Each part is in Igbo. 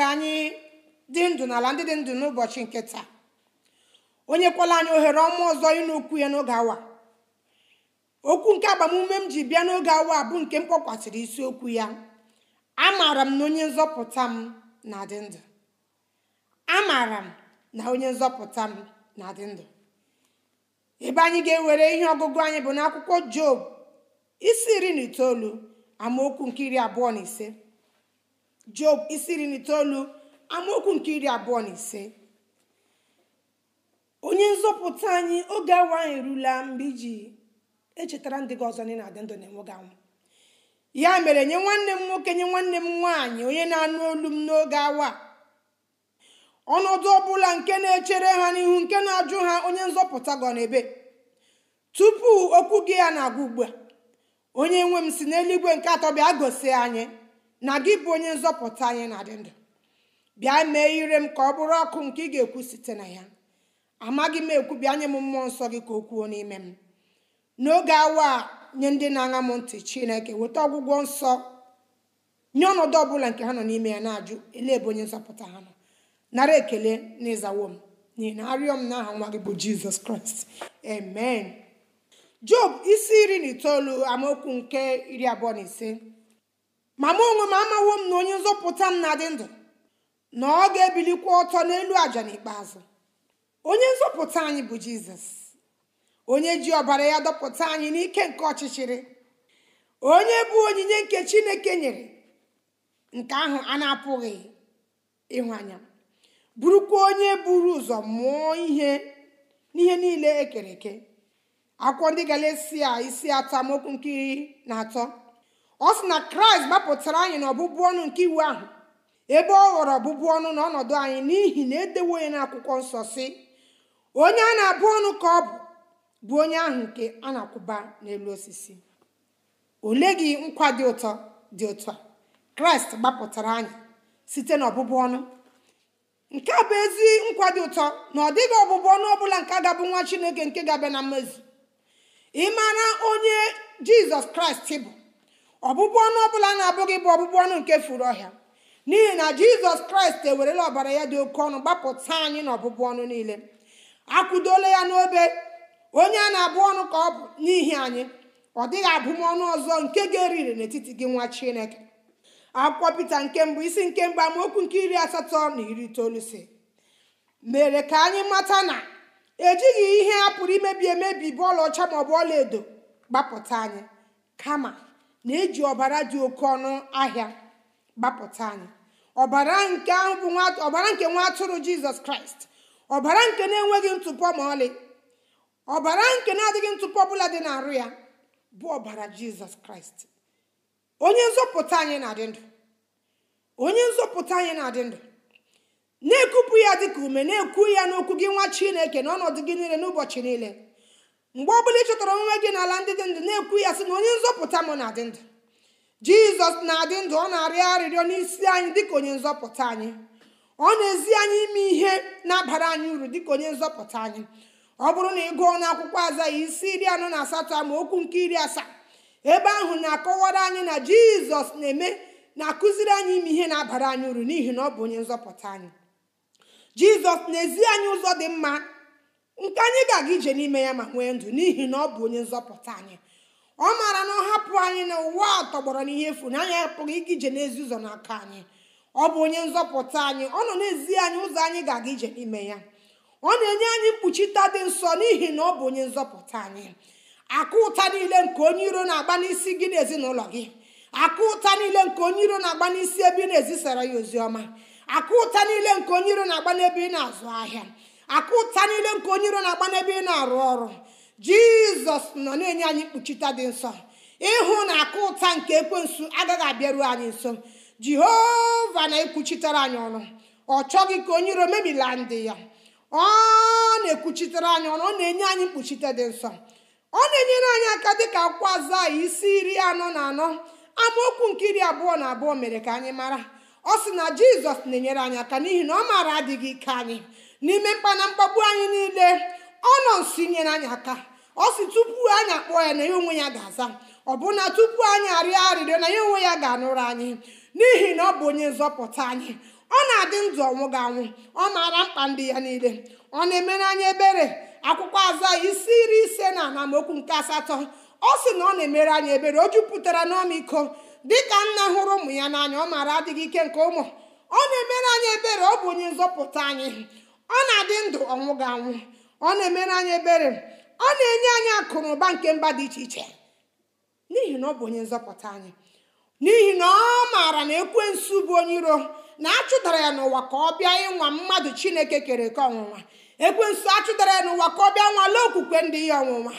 ka anyị dị ndụ n'ala ndị dị ndụ n'ụbọchị nke taa onye kwala anyị ohere ọma ọzọ ịnụ okwu ya n'oge awa okwu nke agbamume m ji bịa n'oge awa bụ nke m kpọkwasịrị isiokwu ya amaara m na onye nzọpụta m na-adị ndụ amaara m na onye nzọpụta m na-adị ndụ ebe anyị ga-ewere ihe ọgụgụ anyị bụ n'akwụkwọ job isi iri na itoolu amaokwu nke iri abụọ na ise job isi iri na itoolu amaokwu nke iri abụọ na ise onye nzọpụta anyị oge awa anyị erula mgbe iji echetara ndị gị ọzọ na-adị ndụ na-enweghị anwụ ya mere nye nwanne m nwoke nye nwanne m nwaanyị onye na-anụ olu m n'oge awa ọnọdụ ọbụla nke na-echere ha n'ihu nke na-ajụ ha onye nzọpụta gọ n'ebe tupu okwu gị ya na-agwa ugbu a onye nwe m si n'eluigwe nke atọ bịa gosi anyị na gị bụ onye nzọpụta anyị na-adị ndụ bịa mee ire m ka ọ bụrụ ọkụ nke ị ga-ekwu site na ya amaghị m ekwu bịa nye m mmụọ nsọ gị ka o kwuo n'ime m n'oge awa a nye ndị na-aṅa m ntị chineke weta ọgwụgwọ nsọ nye ọnọdụ ọbụla nke ha nọ n'ime ya na-ajụ ele ebe onye nzọpụta ha nọ nara ekele na m n'ihi na arịọ m n'aha nwa gị bụ jizọs kraịst amen job isi iri na itoolu amaokwu nke iri abụọ na ise ma mụ onwe m amawo m na onye nzọpụta m na-adị ndụ na ọ ga-ebilikwa ọtọ n'elu àjà n'ikpeazụ onye nzọpụta anyị bụ jizọs onye ji ọbara ya dọpụta anyị n'ike nke ọchịchịrị onye bụ onyinye nke chineke nyere nke ahụ a na-apụghị ịhụ anya bụrụkwa onye buru ụzọ mụọ ihe n'ihe niile ekere eke akwụkwọ ndị galesia isi atọ amaokwu nke iri na atọ ọ sị na kraịst gbapụtara anyị na ọbụbụ ọnụ nke iwu ahụ ebe ọ ghọrọ ọbụbụ ọnụ na ọnọdụ anyị n'ihi na edewo ya n'akwụkwọ nsọ si onye a na-abụ ọnụ ka ọ bụ bụ onye ahụ nke a na-akwụba n'elu osisi ole gị nkwa dị ụtọ dị ụtọ kraịst gbapụtara anyị site na ọbụbụ ọnụ nke a bụ ezi nkwa dị ụtọ na ọ dịghị ọbụbụ ọnụ bụla nke gabụ nwa chineke nke ga-abịa na mmezu ị mara onye jizọs kraịst bụ ọbụbụ ọnụ ọbụla na-abụghị bụ ọbụbụ ọnụ nke furu ọhịa n'ihi na jizọs kraịst ewerela ọbara ya dị oke ọnụ gbapụta anyị na ọbụbụ ọnụ niile akwụdola ya n'obe onye a na-abụ ọnụ ka ọ bụ n'ihi anyị ọ dịghị abụmọnụ ọzọ nke ga-eriri n'etiti gị nwa chineke akwụkwọ pita nke mbụ isi nke mbụ amaokwu nke iri asatọ na iri itoolu si mere ka anyị mata na ejighị ihe a pụrụ imebi emebi bụ ọcha maọbụ ọla edo gbapụta anyị kama na-eji ọbara dị oke ọnụ ahịa gbapụta anyị ọbara nke ahụ bụ ọbara nke nwa atụrụ jizọs kraịst ọbara nke na-enweghị ntụpọ ma ọlị ọbara nke na-adịghị ntụpọ ọbụla dị n'arụ ya bụ ọbara jizọs kraịst onye nzọpụta anyị na-adị ndụ onye nzọpụta anyị na-adị ndụ na-ekupụ ya dịka ume na-ekwu ya n'okwu gị nwa chineke n'ọnọdụ gị niile n'ụbọchị niile mgbe bụla ị chọtara onwe gị n'ala ndị dị ndụ na-ekwu ya sị na onye nzọpụta m na-adị ndụ jizọs na-adị ndụ ọ na-arịọ arịrịọ n'isi anyị dịka onye nzọpụta anyị ọ na-ezi anyị ime ihe na-abara anyị uru dịka onye nzọpụta anyị ọ bụrụ na ị gụọ n'akwụkwọ aza ya isi iri anọ na asatọ ma okwu nke iri asaa ebe ahụ na-akọwara anyị na jizọs na-eme na-akụziri anyị ime ihe na-abara anyị uru n'ihi na ọ bụ onye nzọpụta anyị jizọs na-ezi anyị ụzọ dị mma nke anyị ga-aga ije n'ime ya ma nwee ndụ n'ihi na ọ bụ onye nzọpụta anyị ọ maara na ọ hapụ anyị na ụwa a tọgbọrọ n'ihe efu na anyị apụghị ịga ije n'ezi ụzọ n'aka anyị ọ bụ onye nzọpụta anyị ọ nọ n'ezi anyị ụzọ anyị ga-aga ije n'ime ya ọ na-enye anyị mkpuchita dị nsọ n'ihi na ọ bụ onye nzọpụta anyị akụ ụta niile nke onye iro na-agba n'isi gị n'ezinụlọ gị akụ ụta niile nke onye iro na-agba n'isi ebe ị na-ezisara ya ozi ọma akụ ụta niile nke onye iro na-agba n'ebe ị na-azụ ahịa akụ ụta niile nke onye iro na-agba n'ebe ị na-arụ ọrụ jizọs nọ na-enye anyị mkpuchite dị nsọ ịhụ na akụ ụta nke ekwensu agaghị abịaruo anyị nso jehova na-ekwuchitere anyị ọnụ ọ chọghị ka onye iro mebila ndị ya ọ na-ekwuchitere anyị ọnụ ọ na-enye anyị mkpuchite dị nsọ ọ na-enyere anyị aka dịka akwụkwọ azụ isi iri anọ na anọ amaokwu nke iri abụọ na abụọ mere ka anyị mara ọ sị na jizọs na-enyere anyị aka n'ihi na ọ maara adịghị ike anyị n'ime mkpana mkpagbu anyị niile ọ nọ nso inyere anyị aka ọ sị tupu anyị akpọ ya na ya onwe ya ga-aza ọbụna tupu anyị arịọ arịrịọ na ya onwe ya ga-anụrụ anyị n'ihi na ọ bụ onye nzọpụta anyị ọ na-adị ndụ ọnwụ ga-anwụ ọ maara mkpa ndị ya niile ọ na-emere anyị ebere akwụkwọ aza isi iri ise na okwu nke asatọ ọ sị na ọ na-emere anyị ebere o jupụtara n'ọmịiko dịka nna hụrụ ụmụ ya n'anya ọ maara adịghị ike nke ụmụ ọ na-emere anyị ebere ọ bụ onye nzọpụta anyị ọ na-adị ndụ ọnwụ ga anwụ ọ na-emere anyị ebere ọ na-enye anyị akụnụba nke mba dị iche iche n'ihi na ọ bụ onye nzọpụta anyị n'ihi na ọ maara na ekwensu bụ onye iro na achụdara ya n'ụwa ka ọ bịa ịnwa mmadụ chineke kere ka ọnwụnwa ekwensu achụdara ya n'ụwa ka ọ bịa nwale okwukwe ndị ya ọnwụnwa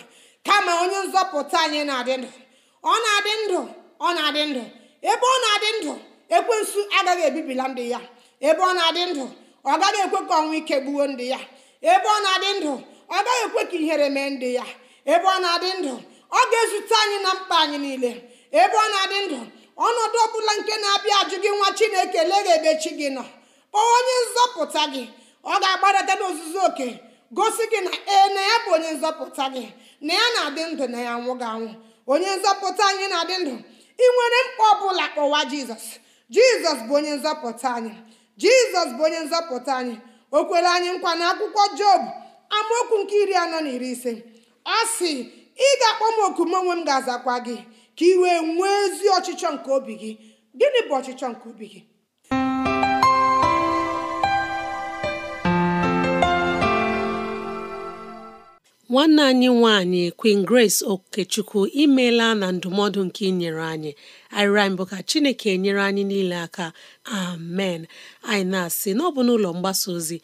kama onye nzọpụta anyị na-adị ndụ ọ na-adị ndụ ọ na-adị ndụ ebe ọ na-adị ndụ ekwensu agaghị ebibila ndị ya ebe ọ na-adị ndụ ọ gaghị ekwe ka ọnwụ ike gbuo ndị ya ebe ọ na-adị ndụ ọ gaghị ekwe ka ihere mee ndị ya ebe ọ na-adị ndụ ọ ga-ezute anyị na mkpa anyị niile ebe ọ na-adị ndụ ọnọdụ ọ bụla nke na-abịa ajụ gị nwa chineke lega ebe chi gị nọ kpọọ onye nzọpụta gị ọ ga agbadata n'ozuzu oke gosi gị na ee na ya bụ onye nzọpụta gị na ya na-adị ndụ na ya nwụ anwụ onye nzọpụta anyị na-adị ndụ ị nwere mkpa ọ bụla kpọwa jizọs jizọs bụ onye nzọpụta anyị jizọs bụ onye nzọpụta anyị o kwere anyị nkwa na akwụkwọ job amaokwu nke iri anọ na iri ise ọ sị ị ga-akpọ m oku m onwe m ga-azakwa gị ka ị wee nwee ezi ọchịchọ nke obi gị gịnị bụ ọchịchọ nke obi gị nwanne anyị nwanyị Queen Grace Okechukwu imeela na ndụmọdụ nke ị nyere anyị arịrịọ anyị bụ ka chineke nyere anyị niile aka amen anyị na-asị "n'ọbụ bụ n'ụlọ mgbasa ozi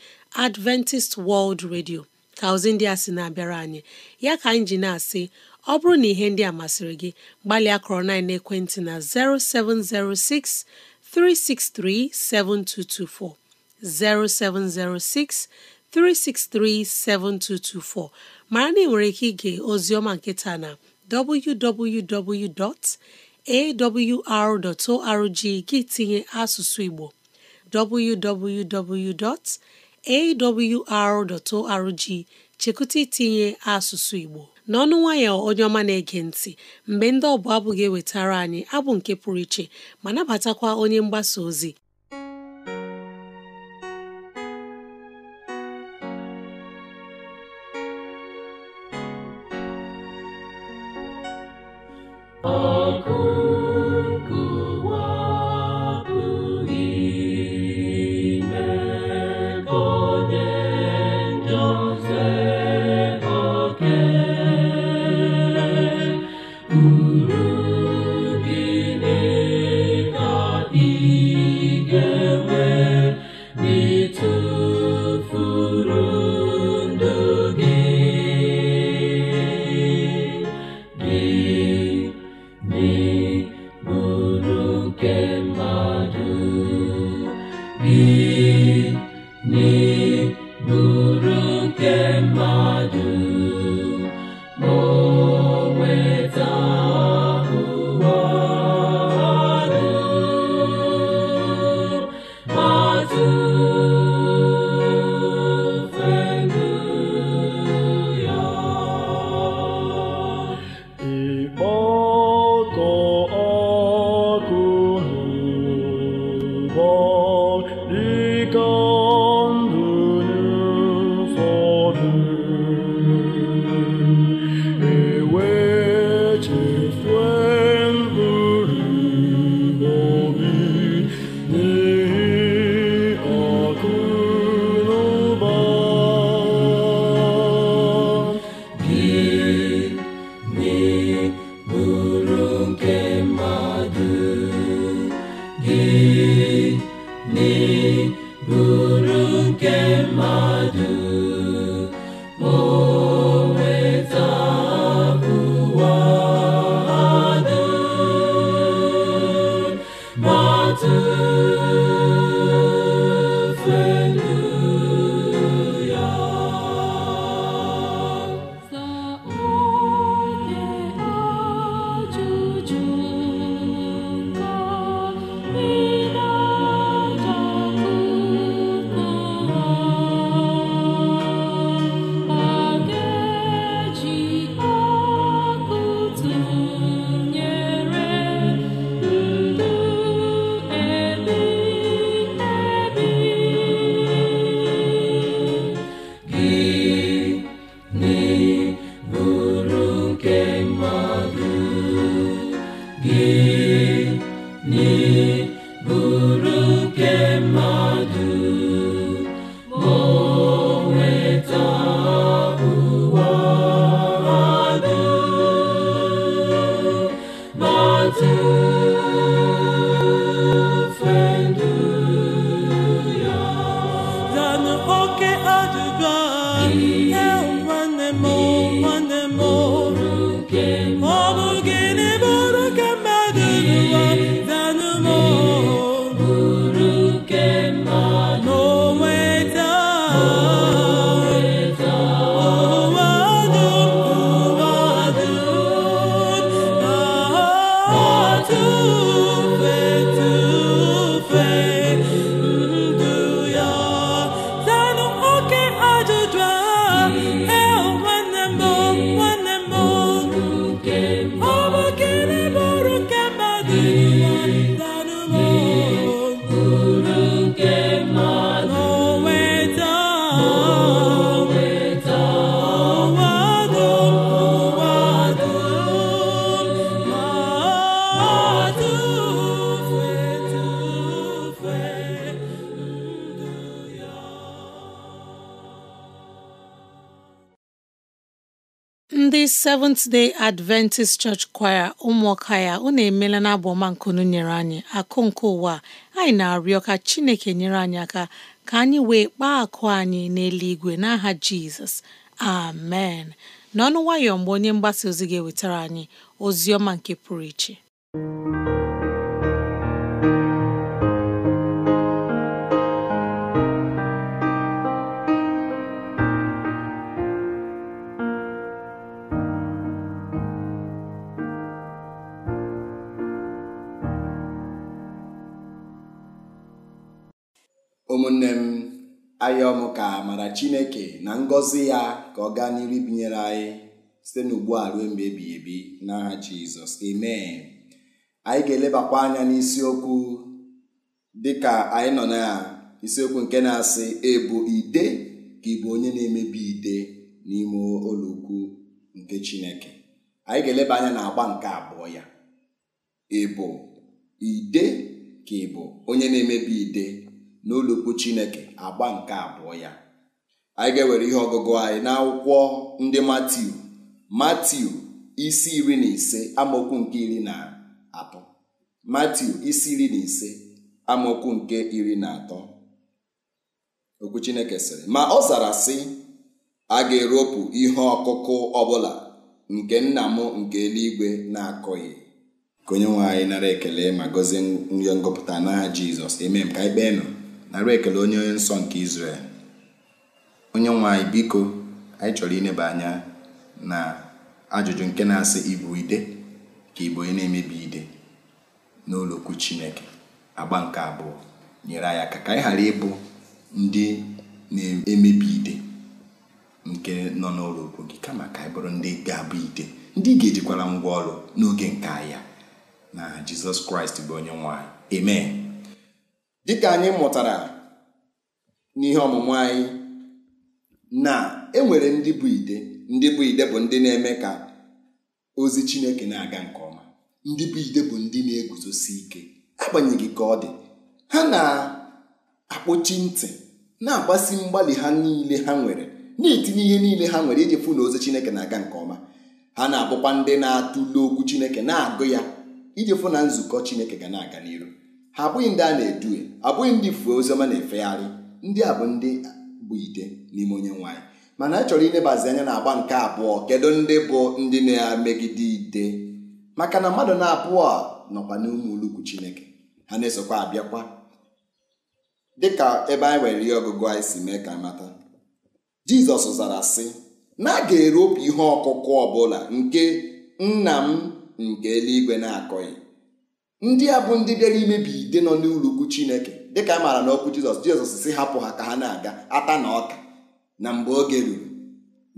Adventist World Radio ka ozi ndị a sị na-abịara anyị ya ka anyị ji na-asị ọ bụrụ na ihe ndị a masịrị gị gbalịa kọrọ na ekwentị na 0706 363 7224 0706 363 7224 mara na ị nwere ike ige ozioma nkịta na www. awr.org gị tinye asụsụ Igbo www.awr.org chekụta itinye asụsụ Igbo n'ọnụ nwayọ onye ọma na-ege ntị mgbe ndị ọbụla abụghị ewetara anyị abụ nke pụrụ iche ma nabatakwa onye mgbasa ozi Seventh Day Adventist Church Choir ụmụọka ya unu emela na abụ ọma nkunu nyere anyị akụ nke ụwa anyị na-arịọ ka Chineke nyere anyị aka ka anyị wee kpaa akụ anyị n'eluigwe n'aha Jizọs amen n'ọnụ nwayọọ mgbe onye mgbasa ozi ga-ewetara anyị ozi ọma nke pụrụ iche ụmụnne m ayọm ka mara chineke na ngọzi ya ka ọ gaa n'iri binyere anyị site n'ugbu a ruo mgbe ebighị ebi n'aha jizọs amen anyị ga-elebakwa anya n'isiokwu dịka anyị nọ na isiokwu nke na-asị ebu ide ka ị onye na-emebi ide n'ime ụlọukwu nke chineke anyị ga-eleba anya na agba nke abụọ ya bụ ide ka ị onye na-emebi ide n'olukwu chineke agba nke abụọ ya anyị ga-ewere ihe ọgụgụ anyị n'akwụkwọ ndị matiu matiu isi iri na ise amaokwu nke iri na atọ matiu isi iri na ise amaokwu nke iri na atọ okwu chineke sịrị ma ọ zara sị a ga-eropụ ihe ọkụkụ ọbụla nke nna m nke eluigwe na-akọghị ka onye nwe anyị nara ekele ma gọzie nri ngọpụta n'aha jizọs emem ka anyị kpee nụ nara ekele onye nsọ nke Izrel onye nwe anyị biko anyị chọrọ ịneba anya na ajụjụ nke na-asị ibu ide ka Igbo onye na-emebi ide n'ụlọokwu Chineke agba nke abụọ nyere anyị aka ka anyị ghara ịbụ ndị na-emebi ide nke nọ n'ụlọokwu gị kama ka anyị bụrụ ndị ga-abụ ide ndị ga-ejikwara ngwa ọrụ n'oge nke ahịa na Jizọs Kraịst bụ onye nwanyị anyị dịka anyị mụtara n'ihe ọmụmụ anyị na enwere ndị bụ ide ndị bụ ide bụ ndị na-eme ka ozi Chineke na-aga nke ọma ndị bụ ide bụ ndị na-eguzosi ike agbanyeghị ka ọ dị ha na-akpọchi ntị na-agbasi mgbalị ha niile ha nwere na-etinye ihe niile ha nwere iji fụ na ozi Chineke na-aga nke ọma ha na-abụkwa ndị na-atụle okwu Chineke na-agụ ya iji fụ na nzukọ Chineke ga na-aga n'iru ha abụghị ndị a na-edue abụghị ndị fuo oziọma na-efegharị ndị a bụ ndị bụ ite n'ime onye nwaanyị mana anyị chọrọ inebazi anya na agba nke abụọ kedu ndị bụ ndị na-emegide ide maka na mmadụ na-abụọ a nọkwa n'ụmụ ulukwu chineke ha na-esokwa abịakwa dịka ebe anyị nwere ihe ọgụgụ anyị si mee ka mata jizọs zara sị na a ga-eropụ ihe ọkụkụ ọbụla nke nna m nke eluigwe na-akọghị ndị a bụ ndị bịara imebi ide nọ n'ụlọukwu chineke dịka a maara n'okwu jizọs jizọs si hapụ ha ka ha na-aga ata na ọka na mgbe oge ruru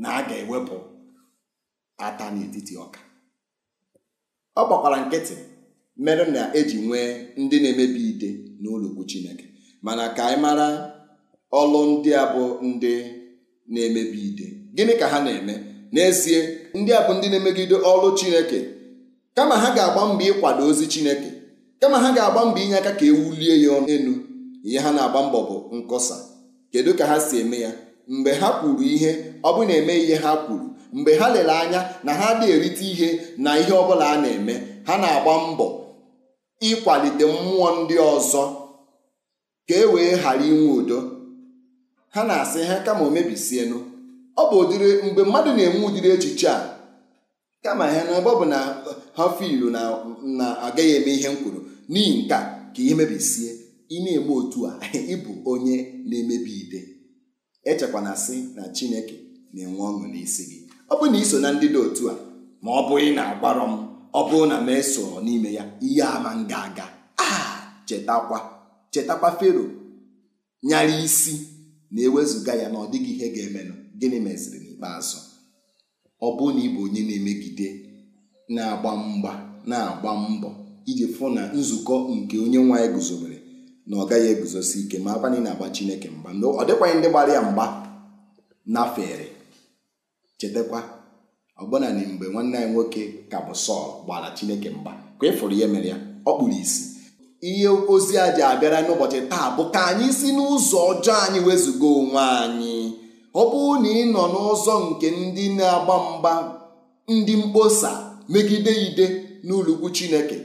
na a ga-ewepụ ata n'etiti ọka ọ gbakwara nkịtị mere na eji nwee ndị na-emebi ide n'ụlọukwu chineke mana ka anyị mara ọlụ ndị a bụ ndị na-emebi ide gịnị ka ha na-eme n'ezie ndị a bụ ndị na-emegide ọlụ chineke kama ha ga-agba mbọ ịkwado ozi Chineke kama ha ga-agba mbọ inye aka ka e wulie ya elu ihe ha na-agba mbọ bụ nkọsa kedu ka ha si eme ya mgbe ha kwuru ihe ọ bụ na-eme ihe ha kwuru mgbe ha lere anya na ha adịghị erite ihe na ihe ọbụla a na-eme ha na-agba mbọ ịkwalite mmụọ ndị ọzọ ka e wee ghara inwe udo ha na-asị ha kama o mebisienụ ọ bụ ụdịrị mgbe mmadụ na-enwe ụdịrị echiche a kama ha n'ebe ọ bụ na ha na na agaghị eme ihe m kwuru n'ihi nke ka ihe mebisie ị na-eme otu a ịbụ onye na-emebi ide echekwana sị na chineke na-enwe ọṅụ n'isi gị ọ bụ na iso na ndị dị otu a ma ọ bụghị na-agbarọ m ọ bụrụ na m eso n'ime ya ihe ama m ga-aga a ah, chetakwa chetakwa fero nyara isi na-ewezuga ya na ọ dịghị ihe ga-emenụ gịnị meziri n'ikpeazụ ọ bụrụ na ịbụ onye na-emegide na-agba mgba na-agba mbọ iji fụ na nzukọ nke onye nwa ya guzobere na ọ gaghị eguzosi ike ma akwa na ị na-agba Chineke mgba ọ dịkwanye ndị gbara ya mgba nafere chetakwa ọbụna na mgbe nwanne anyị nwoke ka bụ Sọl gbara Chineke mgba ka ị fụrụ ihe mere ya ọ kpụrụ isi ihe ozi a ji abịara n'ụbọchị taa bụ ka anyị si n'ụzọ ọjọọ anyị wezụga onwe anyị ọ bụrụ na ị nọ n'ụzọ nke ndị na-agba mgba ndị mkposa megide ide n'ụlọukwu chineke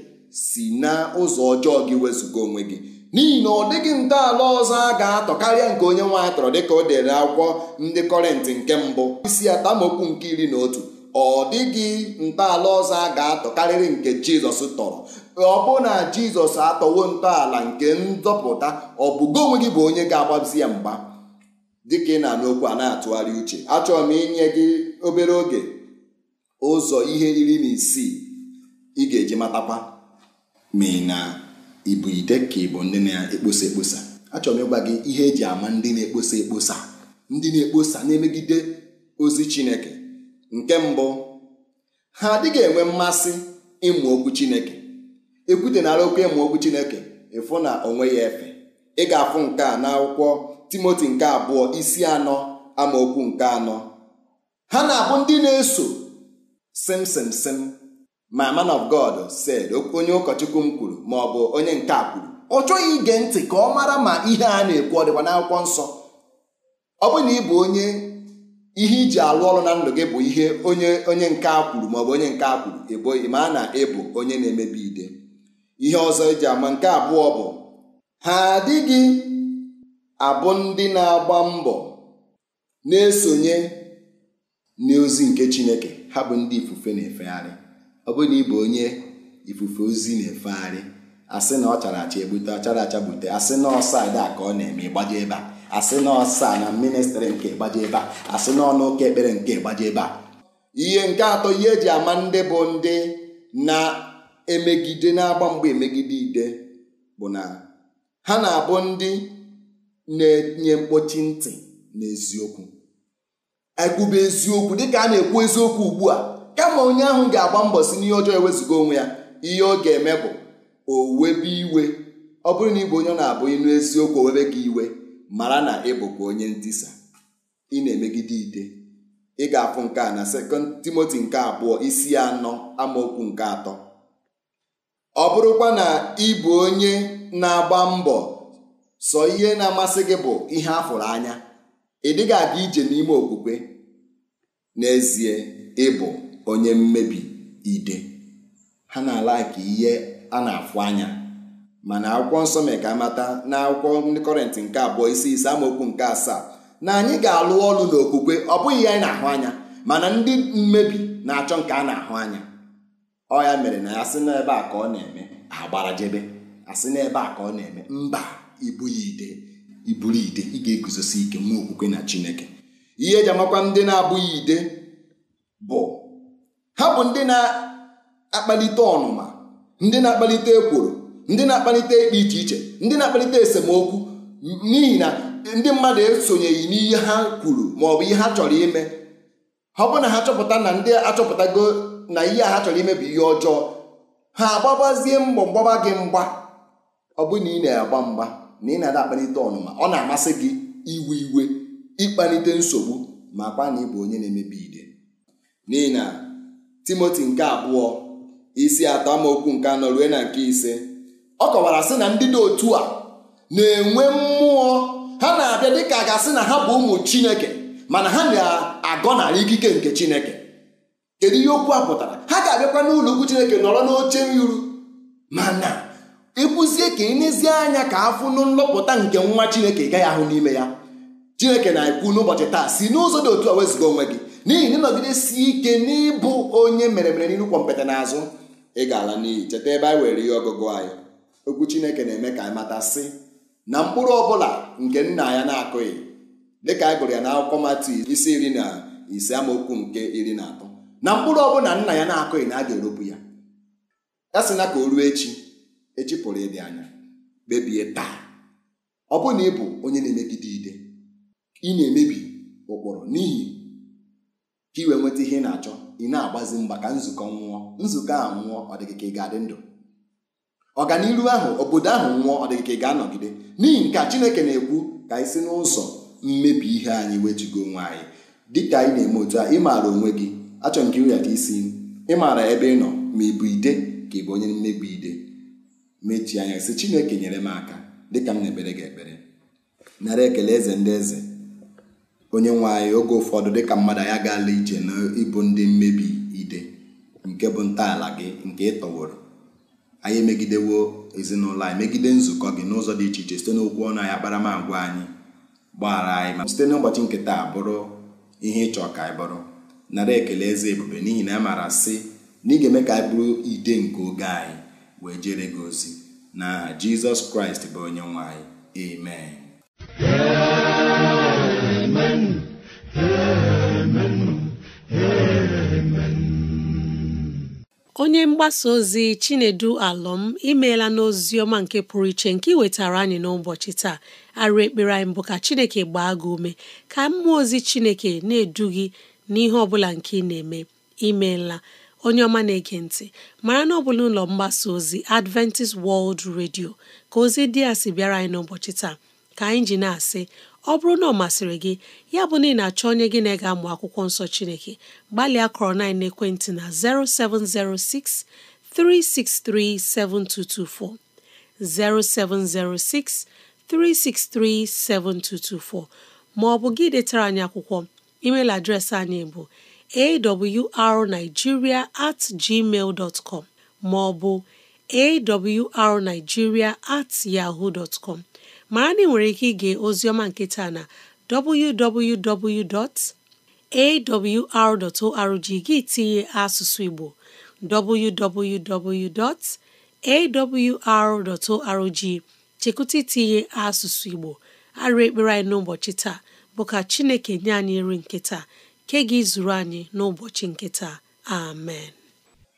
si na ụzọ ọjọọ gị wezụga onwe gị n'ihi na ọ dịghị ntọala ọzọ a ga-atọ karịa nke onye nwe atọrọ dịka o dere akwụkwọ ndị kọrịntị nke mbụ isi atamokwu nke iri na otu ọ dịghị ntọala ọzọ a ga-atọ karịrị nke jizọs tọrọ ọ bụ na jizọs atọwo ntọala nke nzọpụta ọ bụgo onwe gị bụ onye ga-agbazi ya mgba ka ị na-anụ okwu a na-atụgharị uche achọrọ m inye gị obere oge ụzọ ihe iri na isii ị ga-eji matakwa ma ị na ibu ide ka ịbụ ndị na-ekposa ekposa achọrọ m ịgwa gị ihe eji ama ndị na-ekposa ekposa ndị na-ekposa na-emegide ozi Chineke nke mbụ ha adịghị enwe mmasị ịmụ okwu Chineke ekwutenara okwu ịmụ okwu Chineke ịfụ na onwe ya efe ị ga-afụ nke a n'akwụkwọ timoti nke abụọ isi anọ amaokwu nke anọ ha na-abụ ndị na-eso simsimsim my man of God said onye ụkọchukwu m kwuru ma ọ bụ onye nke a kwuru ọ chọghị ige ntị ka ọ mara ma ihe a na-ekwu ọ dịkwa n'akwụkwọ nsọ ọ bụ na ị bụ onye ihe iji alụ ọrụ na ndụ gị bụ ihe onye onye nke a kwuru maọbụ onye nke a kwuru eboghị ma a na ịbụ onye na-emebi ide ihe ọzọ eji ama nke abụọ bụ ha adịghị abụ ndị na-agba mbọ na-esonye n'ozi nke Chineke ha bụ ndị ifufe na-efegharị ọ bụrụ na ị bụ onye ifufe ozi na-efegharị asị na ọ chara acha ebute ọ chara acha gbute asị na ọsa ada ka ọ na-eme ịgbaje ebe a asị na ọsa na ministrị nke ịgbaje ebe a asị na ọnụ ụka ekpere nke ịgbaje ebe a ihe nke atọ ihe eji ama ndị bụ ndị na-emegide na-agba mgba emegide ide bụ na ha na-abụ ndị na-enye mkpọchi ntị n'eziokwu ekwube eziokwu dịka a na-ekwu eziokwu ugbu a kama onye ahụ ga-agba mbọ si n'ihe ọjọọ ewezuga onwe ya ihe ọ ga-eme bụ o webe iwe ọ bụrụ na ịbụ onye na-abụ ịnụ eziokwu owebe gị iwe mara na ị onye ntisa ị na-emegide ide ị ga-afụ nke a na sekọnd timoti nke abụọ isi anọ amaokwu nke atọ ọ bụrụkwa na ị bụ onye na-agba mbọ sọ ihe na-amasị gị bụ ihe a fụrụ anya ị dịghị aga ije n'ime okwukwe n'ezie ịbụ onye mmebi ide ha na-ala ka ihe a na-afụ anya mana akwụkwọ nsọ mere ka amata na akwụkwọ ndị kọrịntị nke abụọ isi ise amaokwu nke asaa na anyị ga-alụ ọlụ n'okwukwe ọ bụghị ihe anyị na-ahụ anya mana ndị mmebi na-achọ nke a na-ahụ anya ọ ya mere na ya sị n'ebe a ka ọ na-eme agbara jebe asị n'ebe a ka ọ na-eme mba ibulite ibulite ị ga-eguzosi ike nwa okwukwe na Chineke ihe eji amakwa ndị na-abụghị ide bụ ha bụ ndị na-akpalite ọnụma ndị na-akpalite ekworo ndị na-akpalite ikpe iche iche ndị na-akpalite esemokwu n'ihi na ndị mmadụ esonyeghị n'ihe ha kwuru ma ọ bụ ihe ha chọrọ ime ọ bụ na ha chọpụta na ndị achọpụtago na ihe a ha chọrọ ime bụ ihe ọjọọ ha agbabazie mbọ mgbaba gị mgba ọ bụ na ị na-agba mgba na ị na-ada akpalite ọnụma ọ na-amasị gị iwe iwe ịkpalite nsogbu ma kwa na ịbụ onye na-emebi ide n'ihi na timoti nke abụọ isi atọ amaokwu nke anọ rue na nke ise ọ kọwara sị na ndị dị otu a na-enwe mmụọ ha na-abịa dịka gasị na ha bụ ụmụ chineke mana ha na-agọnarị ikike nke chineke kedu ihe okwu a pụtara ha ga-abịakwa n'ụlọ chineke nọrọ n'oche nru ma ka nezie anya ka afụ nụ nlọpụta nke nwa chineke gaghị ahụ n'ime ya chineke na-ekwu n'ụbọchị taa si n'ụzọ dị otu a wezụga onwe gị n'ihi na ịnọgidesi ike n'ịbụ onye mere mere n'irukwa mpete n'azụ ị ga-ala n'iyi cheta ebe anyị were ihe ọgụgụ anyị okwu chineke na-eme ka anyị mata sị na mkpụrụ ọbụla nke nna ya na-akụghị dịka anyị gụrụ ya n'akwụkwọ matu isi iri na ise amaokwu nke iri na atọ na mkpụrụ ọbụla nna ya na-akụghị na a ga-eropụ ya ya sị na ka o ruo echi echi pụrụ ịdị anya kpebie taa ọ bụrụ na ị bụ onye na-emegide ide ị na-emebi ụkpụrụ n'ihi ka ị wee nweta ihe ị na-achọ ị na-agbazi mgba ka nzukọ nwụọ nzukọ a nwụọ ọ ka ị ga-adị ndụ ọganiru ahụ obodo ahụ nwụọ ọ ka ị ga-anọgide n'ihi nke a Chineke na-ekwu ka anyị si n'ụzọ mmebi ihe anyị wetugo onwe anyị dịka anyị na-eme otu a ị maara onwe gị achọ nke iwelata isi ị maara ebe ị nọ ma ị bụ ide ka ị bụ onye mmebi ide mechie anya si chineke nyere m aka dịka m na-ekpere gị ekpere nara ekele eze ndị eze onye nwe anyị oge ụfọdụ dịka mmadụ anyị gaala ije na ịbụ ndị mmebi ide nke bụ ntọala gị nke ịtọworo anyị emegidewo ezinụlọ anyị megide nzukọ gị n'ụzọ dị iche iche site n'okwu ọnụ anyị akparamagwa anyị gbaghara anyị ma site n'ụbọchị nkịta bụrụ ihe ịchọ ka anyị bụrụ nara ekele eze ebube n'ihi na a maara sị na ị ga-eme ka anyị bụrụ ide nke oge anyị wee jere gị ozi na jizọs kraịst bụ onye nwe anyị onye mgbasa ozi chinedu alọm imeela n'ozi ọma nke pụrụ iche nke ị wetara anyị n'ụbọchị taa arụ ekpere anyị mbụ ka chineke gbaa gị ume ka mmụọ ozi chineke na-edu gị n'ihe ọbụla bụla nke ị na-eme imeela onye ọma na-ege ntị mara na ọ bụla ụlọ mgbasa ozi Adventist World Radio ka ozi dị a sị bịara anyị n'ụbọchị taa ka anyị ji na-asị ọ bụrụ na ọ masịrị gị ya bụ na ị na-achọ onye gị na ega amụ akwụkwọ nsọ Chineke gbalịa kọrọ na ekwentị na 0706 363 7224 0706 363 7224 ma ọ bụ gị detara anyị akwụkwọ email adreesị anyị bụ awrnigeria at gmail com ma ọ bụ awrnigeria at yahoo dot com mara na ị nwere ike ige ozioma nketa na www.awr.org gị tinye asụsụ Igbo www.awr.org chekwụta itinye asụsụ Igbo arụ ekpere anyị n'ụbọchị taa bụ ka Chineke nye anyị nri nketa nke gị zuru anyị n'ụbọchị nke taa amen imeela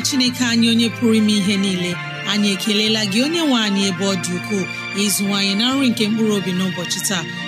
chineke anyị onye pụrụ ime ihe niile anyị ekelela gị onye nwe anyị ebe ọ dị ukwuu ịzụwanyị na nri nke mkpụrụ obi n'ụbọchị taa